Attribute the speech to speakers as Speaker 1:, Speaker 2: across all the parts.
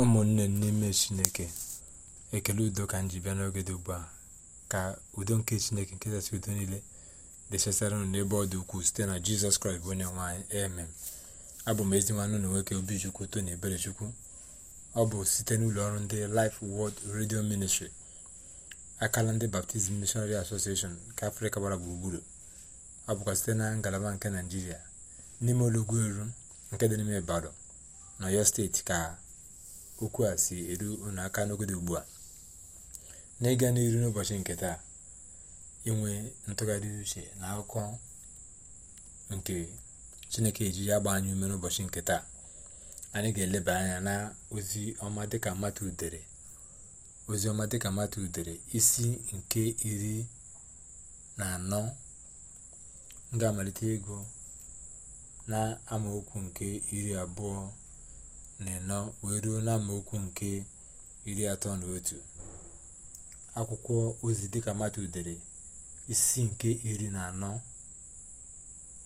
Speaker 1: ụmụnne n'ime chineke ekele udo ka m ji bịa n'oge dị ugbu a ka udo nke chineke nke kachasị udo niile dechasara nụ n'ebe ọ dị ukwuu site na jizọs kraịst bụ onye nwanyị emem abụ m ezi nwanne na nwoke obichukwu tony chukwu ọ bụ site n'ụlọ ọrụ ndị life world redio ministri akala ndị baptizim missionary association nke afrịka gbara gburugburu ọ bụkwa site na ngalaba nke naijiria n'ime olọgwu eru nke dị n'ime ibadan na yọ steeti ka okwu a si eru unu aka n'ogodo ugbu a n'ịga ịga n'iru n'ụbọchị nke taa inwe ntụgharị uche na akụkọ nke chineke eji ya gba anyị ume n'ụbọchị nke taa anyị ga-eleba anya na ozi ọma dịka mmadụ udere udere isi nke iri na anọ m amalite ego na amaokwu nke iri abụọ na ịnọ wee ruo na amaokwu nke iri atọ na otu akwụkwọ ozi dịka matu dere isi nke iri na anọ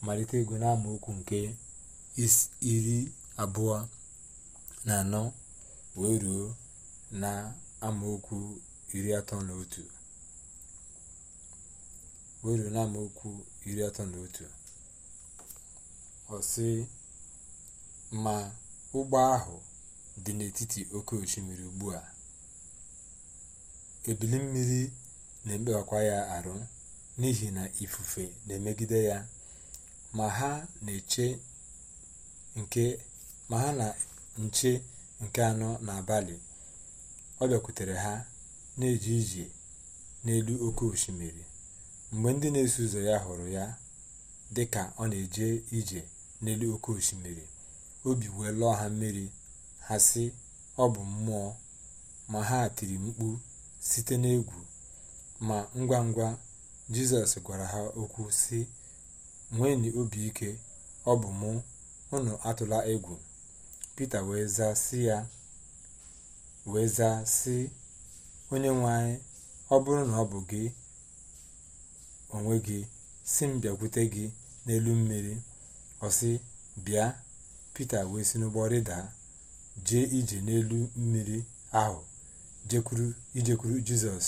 Speaker 1: malite ego na amaokwu nke iri abụọ na anọ wee ruo na amaokwu iri atọ na otu wee ruo na amaokwu iri atọ na otu ma ụgbọ ahụ dị n'etiti oke osimiri ugbu a ebili mmiri na-ekpewakwa ya arụ n'ihi na ifufe na-emegide ya ma ha na nche nke anọ n'abalị ọ bịakwutere ha na-eje ije n'elu oke osimiri mgbe ndị na-eso ụzọ ya hụrụ ya dị ka ọ na-eje ije n'elu oke osimiri obi wee lụọ ha mmiri ha si ọ bụ mmụọ ma ha tiri mkpu site n'egwu ma ngwa ngwa jizọs gwara ha okwu si nweenụ obi ike ọ bụ mụ unu atụla egwu pita wee zaa sị ya wee zaa si onye nwe anyị ọ bụrụ na ọ bụ gị onwe gị si m bịakwute gị n'elu mmiri ọ sị bịa pita wee si n'ụgbọ rịdaa jee ije n'elu mmiri ahụ ijekwuru jizọs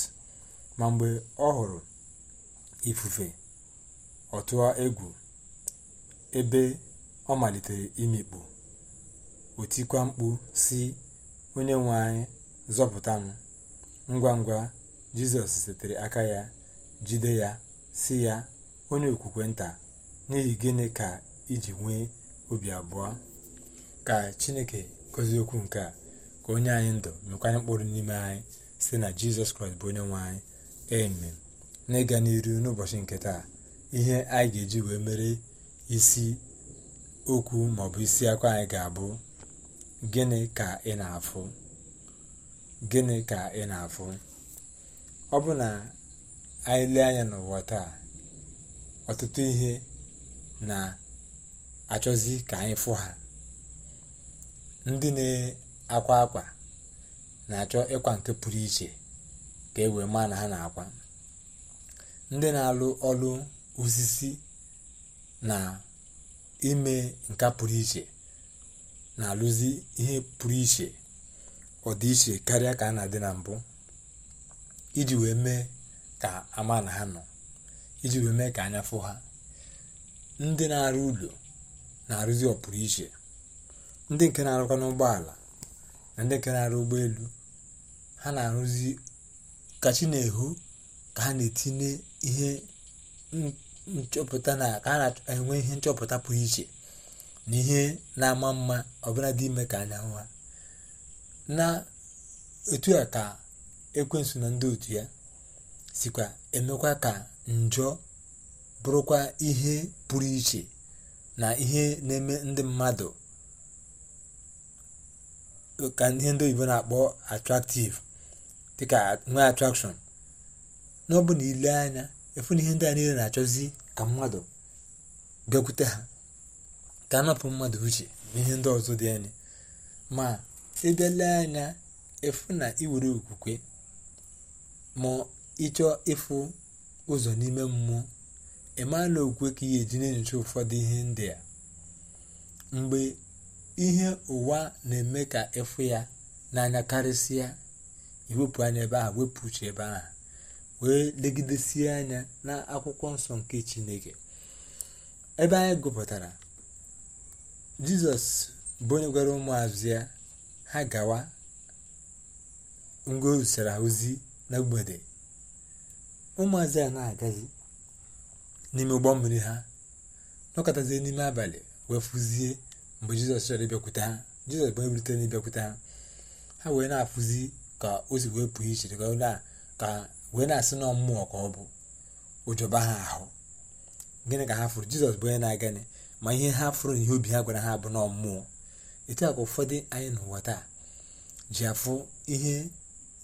Speaker 1: ma mgbe ọ hụrụ ifufe otu a egwu ebe ọ malitere imikpu otikwa mkpu si onye nwe anyị zọpụta m ngwa ngwa jizọs setere aka ya jide ya si ya onye okwukwe nta n'ihi gịnị ka iji nwee obi abụọ ka chineke gozie okwu nke a ka onye anyị ndụ mekwanye mkpụrụ n'ime anyị site na jizọs kraịst bụ onye nwe anyị eme na ịga n'iru n'ụbọchị nke taa ihe anyị ga-eji wee mere isi okwu maọbụ isi akwa anyị ga-abụ gịnị ka ị na-afụ gịnị ka ị na-afụ ọ bụ na anyị lee anya n'ụwa taa ọtụtụ ihe na-achọzi ka anyị fụ ha ndị na-akwa akwa na-achọ ịkwa nke pụrụ iche ka e wee maa na ha na-akwa ndị na-alụ ọrụ osisi na ime nka pụrụ iche na-alụzi ihe pụrụ iche ọdịiche karịa ka a na-adị na mbụ iji wee mee ka ama na ha nọ iji wee mee ka anya fụ ha ndị na-arụ ụlọ na-arụzi ọpụrụ iche ndị nke na-arụkwa n'ụgbọala na ndị nke na-arụ ụgbọelu ha na-arụzi kachi na-ehu ka ha na-etinye ihe nchọpụta na ka ha na-enwe ihe nchọpụta pụrụ iche na ihe na-ama mma ọbụla dị ime ka anyanwụ ha na etu a ka ekwensu na ndị otu ya sikwa emekwa ka njọ bụrụkwa ihe pụrụ iche na ihe na-eme ndị mmadụ ka ihe ndị oyibo na-akpọ atraktiv dịka nwee atrakshọn na ọ na ile anya efu na ihe ndị a niile na-achọzi ka mmadụ bịakwute ha ka anapụ mmadụ uche na ihe ndị ọzọ dị anya ma ịbịale anya efu na iwere okwukwe ma ịchọ ịfụ ụzọ n'ime mmụọ ịmala okwukwe ka ị ga-eji na-enyocha ụfọdụ ihe ndị a mgbe ihe ụwa na-eme ka ịfụ ya n'anya karịsịa iwepụ anya ebe a wepụ uche ebe ahụ wee legidesie anya na akwụkwọ nsọ nke chineke ebe anyị gụpụtara jizọs bụ onye gwara ụmụazụ ha gawa ngwa ozisara ozi na mgbede ụmụazụ ya na-agazi n'ime ụgbọ mmiri ha nọkọtazie n'ime abalị wee fụzie mgbe jizọs chọrọ ịbịakwute ha jizọs bụ ebirite na ịbịakwute ha ha wee na-afụzi ka o si wee pụọ iche ka wee na-asị na ọmmụọ ka ọ bụ ụjọba ha ahụ gịnị ka ha fụrụ jizọs bụ onye na-agani ma ihe ha fụrụ na ihe obi ha gwara ha bụ nọọ mmụọ etu a ka ụfọdụ anyị n'ụwa taa ji afụ ihe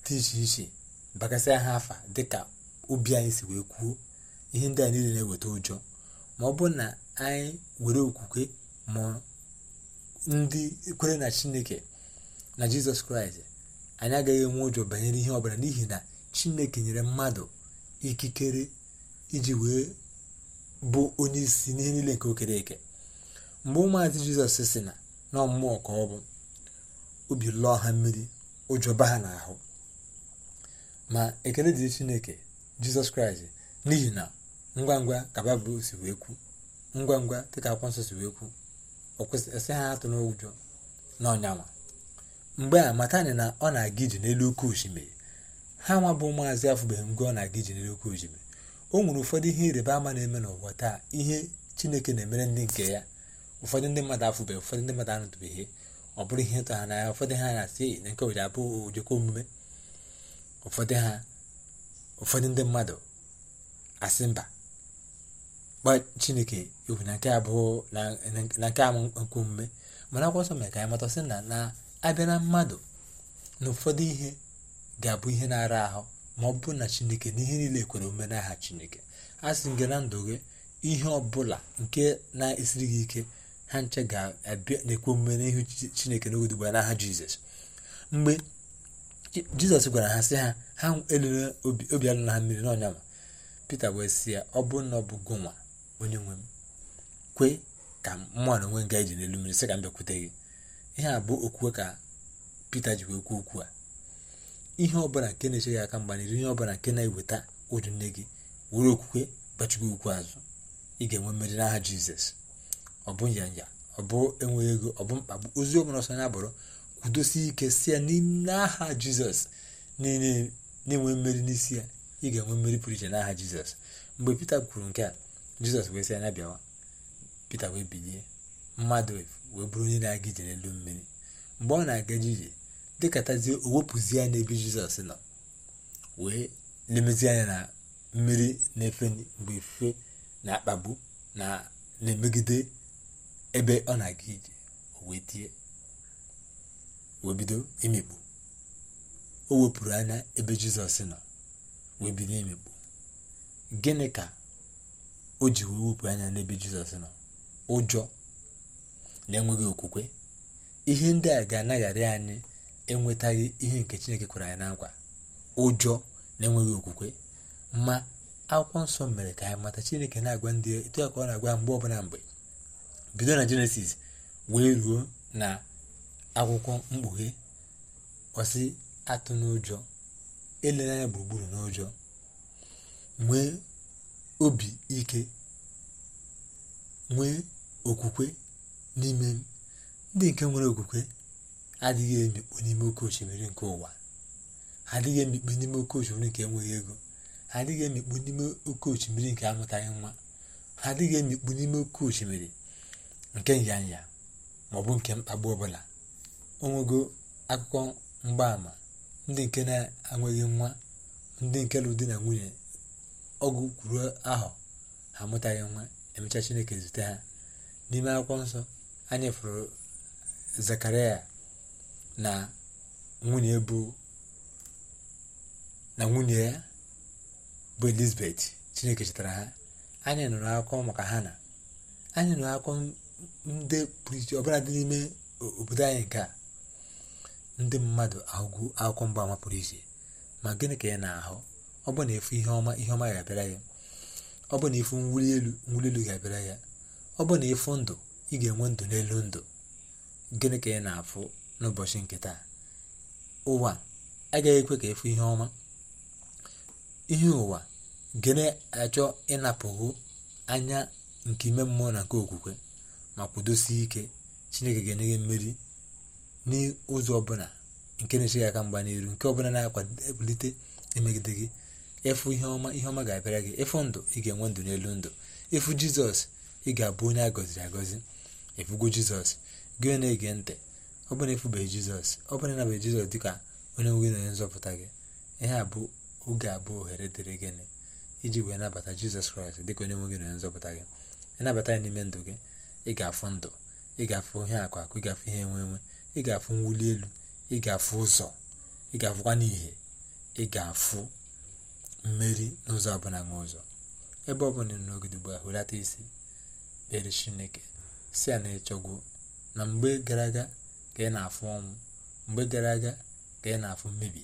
Speaker 1: dị iche iche bakasịa ha afa dịka obi anyị si wee kwuo ihe ndị a niile na-eweta ụjọ ma ọ bụrụ na anyị were okwukwe mụọ ndị kwere na chineke na jizọs kraịst anyị agaghị enwe ụjọ banyere ihe ọbụla n'ihi na chineke nyere mmadụ ikikere iji wee bụ onye isi n'ihe niile nke okere eke mgbe ụmụazị jizọs si na na ọmmụọ ka ọ bụ obi lụọ ha mmiri ụjọ ba ha n'ahụ ma ekele dị chineke jizọs kraịst n'ihi na ngwa ngwa ka baịbụl si wee kwu ngwa ngwa dịka akwụkwọ nsọ si wee kwu esi e ha atụ n'ụjọ n'ọnyanwa mgbe a matani na ọ na-aga iji n'elu oke osimiri ha nwa bụ maazị afụbeghị mgbe ọ na-aga iji n'elu oke osimiri o nwere ụfọdụ ihe ịrịba ama na-eme n'ụwa taa ihe chineke na-emere ndị nke ya ụfọdụ ndị mmadụ afụbeghị ụfọdụ ndị mmadụ anụtụbeghị ọ bụrụ ihe ịtọ ha n'anya ụfọdụ ha na-asị na nke obodo abụ ojekwa omume ụfọdụ ha ụfọdụ ndị mmadụ asị mba gba chineke egwu na nke a bụ na nke a nkwumme mana akwụkwọ mere ka anyị mata sị na na-abịa mmadụ na ụfọdụ ihe ga-abụ ihe na-ara ahụ ma ọ bụ na chineke na ihe niile kwere omume n'aha chineke a sị gị na ndụ gị ihe ọbụla nke na-esiri gị ike ha nche ga-abịa na-ekwe omume n'ihu chineke n'oge dugba n'aha jizọs mgbe jizọs gwara ha sị ha ha elula obi alụla ha mmiri n'ọnya ma pita wee sị ya ọ bụ na ọ bụ gụnwa onye nwe m kwe ka mmụọ nwe ga n'elu mmiri sị ka m bịakwute gị ihe a bụ okwukwe ka Pita ji wee kwu okwu a ihe ọbụla nke na-eche gị aka mgba n'iru ihe ọbụla nke na-eweta ụjụ nne gị were okwukwe gbachigo okwu azụ ị ga-enwe mmeri n'aha Jizọs ọ bụ nyanya ọ bụ enweghị ego ọ bụ mkpagbu ozi ọbụla ọsọ ya bụrụ kwudosi ike si ya n'aha Jizọs na-enwe mmeri n'isi ya ị ga-enwe mmeri pụrụ iche n'aha Jizọs mgbe Pita kwuru nke a jizọs wee sị anya bịawa pita wee bilie mmadụ wee onye na-aga ije n'elu mmiri mgbe ọ na-aga ije dịkatazie o wepụzie ya n'ebe jizọs nọ wee lemezie anya na mmiri na-efe mgbe ife na-akpagbu na na-emegide ebe ọ na-aga ije o wee tie wee bido o wepụrụ anya ebe jizọs nọ wee bido imikpu gịnị ka o ji wee wepụ anya n'ebe jizọs nọ ụjọ na enweghị okwukwe ihe ndị a ga-anaghara anyị enwetaghị ihe nke chineke kwere anyị na nkwa ụjọ na enweghị okwukwe ma akwụkwọ nsọ mere ka anyị mata chineke na-agwa ndị etu ka ọ na-agwa mgbe ọbụla mgbe bido na jenesis wee ruo na akwụkwọ mkpughe ọsị atụ n'ụjọ elere anya gburugburu n'ụjọ nwee obi ike nwee okwukwe n'ime m ndị nke nwere okwukwe adịghị emikpu n'ime oke osimiri nke ụwa adịghị emikpu n'ime oke osimiri nke enweghị ego adịghị emikpu n'ime oke osimiri nke amụtaghị nwa adịghị emikpu n'ime oke osimiri nke nyanya maọbụ nke mkpagbu ọbụla onwego akụkọ mgbaama ndị nke na-enweghị nwa ndị nke lụ di na nwunye ọgwụ kwuru ahụ amụtaghị nwa emecha chineke zute ha n'ime akwụkwọ nsọ anyị fụrụ zakaria na nwunye bụ na nwunye ya bụ elizabeth chineke chetara ha anyị nụrụ akwụkwọ maka na anyị nụrụ akwụkwọ ndị pụrụ iche ọbụla dị n'ime obodo anyị nke a ndị mmadụ ahụgwu akwụkwọ mgbaama pụrụ iche ma gịnị ka ya na-ahụ ọ bụ na efu ihe ọma ihe ọma ga-abịara ya ọ bụ na ịfụ nwuli elu mwuli elu ga-abịara ya ọ bụ na ịfụ ndụ ị ga-enwe ndụ n'elu ndụ gịnị ka ị na-afụ n'ụbọchị nke taa ụwa agaghị ekwe ka ịfụ ihe ọma ihe ụwa gịnị achọ ịnapụghị anya nke ime mmụọ na nke okwukwe ma kwudosie ike chineke ga-enye gị mmeri n'ụzọ ọbụla nke na-eche aka mgba n'iru nke ọbụla na-akwalite emegide gị ịfụ ihe ọma ihe ọma ga-abịara gị ịfụ ndụ ị ga-enwe ndụ n'elu ndụ ịfụ jizọs ị ga-abụ onye a gọziri agọzi ịfụgo jizọs gị na-ege ntị ọ bụrụ na ịfụbeghị jizọs ọ bụrụ na jizọs dịka onye nwe gị na onye nzọpụta gị ihe a bụ oge abụọ ohere dịrị gịnị iji wee nabata jizọs kraịst dịka onye nwe gị na onye nzọpụta gị ịnabata ya n'ime ndụ gị ị ga-afụ ndụ ị ga-afụ ihe akụ akụ ị ga-afụ ihe enwe enwe ị ga-afụ mwuli elu ị ga-afụ ụzọ ị ga-afụkwa n'ihe ị ga-afụ mmeri n'ụzọ ọbụla nwe ụzọ ebe ọ bụla n'ogide ugbu hulata isi kpere chineke si ya na ịchọgwo na mgbe gara aga ka ị na-afụ ọnwụ mgbe gara aga ka ị na-afụ mmebi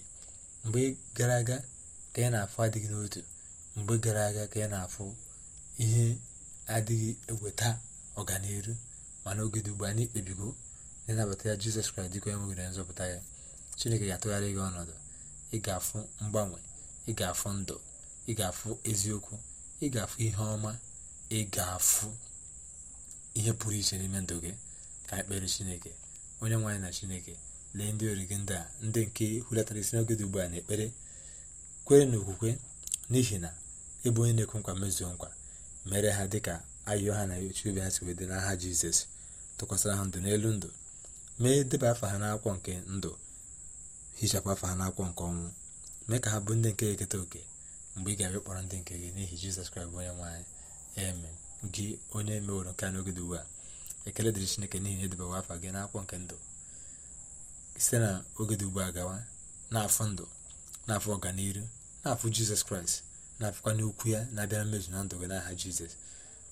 Speaker 1: mgbe gara aga ka ị na-afụ adịghị n'otu mgbe gara aga ka ị na-afụ ihe adịghị eweta ọganihu mana ogede ugbu a anyị kpebigo na ya jizọs kraịst dịka onye nzọpụta ya chineke ga-atụgharị gị ọnọdụ ị ga-afụ mgbanwe ị ga-afụ ndụ ị ga-afụ eziokwu ị ga-afụ ihe ọma ị ga-afụ ihe pụrụ iche n'ime ndụ gị ka ekpere chineke onye nwaanyị na chineke lee ndị ori gị ndị a ndị nke hulatara isi n'oge dị ugbu a na-ekpere kwere na okwukwe n'ihi na ịbụ onye na-ekwu nkwa mezuo nkwa mere ha ka ayọ ha na oche obi ha si wee dị n'aha jizọs tụkwasịra ha ndụ n'elu ndụ mee deba afa ha n'akwọ nke ndụ hichapụ afa ha n'akwọ nke ọnwụ mee ka ha bụ ndị nke eketa oke mgbe ị ga-abịa kpọrọ ndị nke gị n'ihi jizọs kraịst bụ onye nwaanyị eme gị onye meworo nke a n'oge dị ugbu a ekele dịrị chineke n'ihi na edobewa afa gị n'akwụkwọ nke ndụ site na oge dị ugbu a gawa n'afọ ndụ n'afọ ọganiru n'afọ jizọs kraịst na-afụkwa n'okwu ya na-abịara mmezu na ndụ gị n'aha jizọs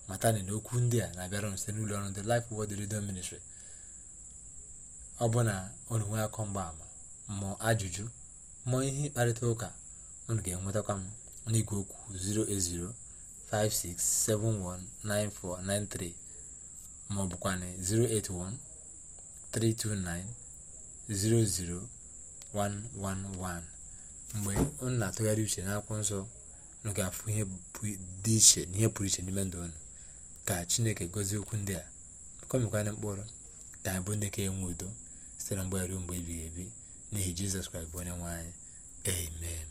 Speaker 1: Mata na okwu ndị a na-abịara ọnụ site n'ụlọ ọrụ ndị Laịf wod Radio Ministry ọ bụ na ọnụ akọ mgbaama mmụọ ajụjụ mụọ ihe ịkparịta ụka unu ga-enwetakwa m n'igwe okwu 08056719493 maọbụkwanụ 08132900111 mgbe unu na-atụgharị uche n'akwụkwọ nsọ unu ga-afụ ihe dị iche na pụrụ iche n'ime ndụ unu ka chineke gozie okwu ndị a kọmekwana mkpụrụ ka anyị bụ ndị ka enwe udo site na mgbe ruo mgbe ebighị ebi n'ihi jizọs kraịst bụ onye nwe anyị amen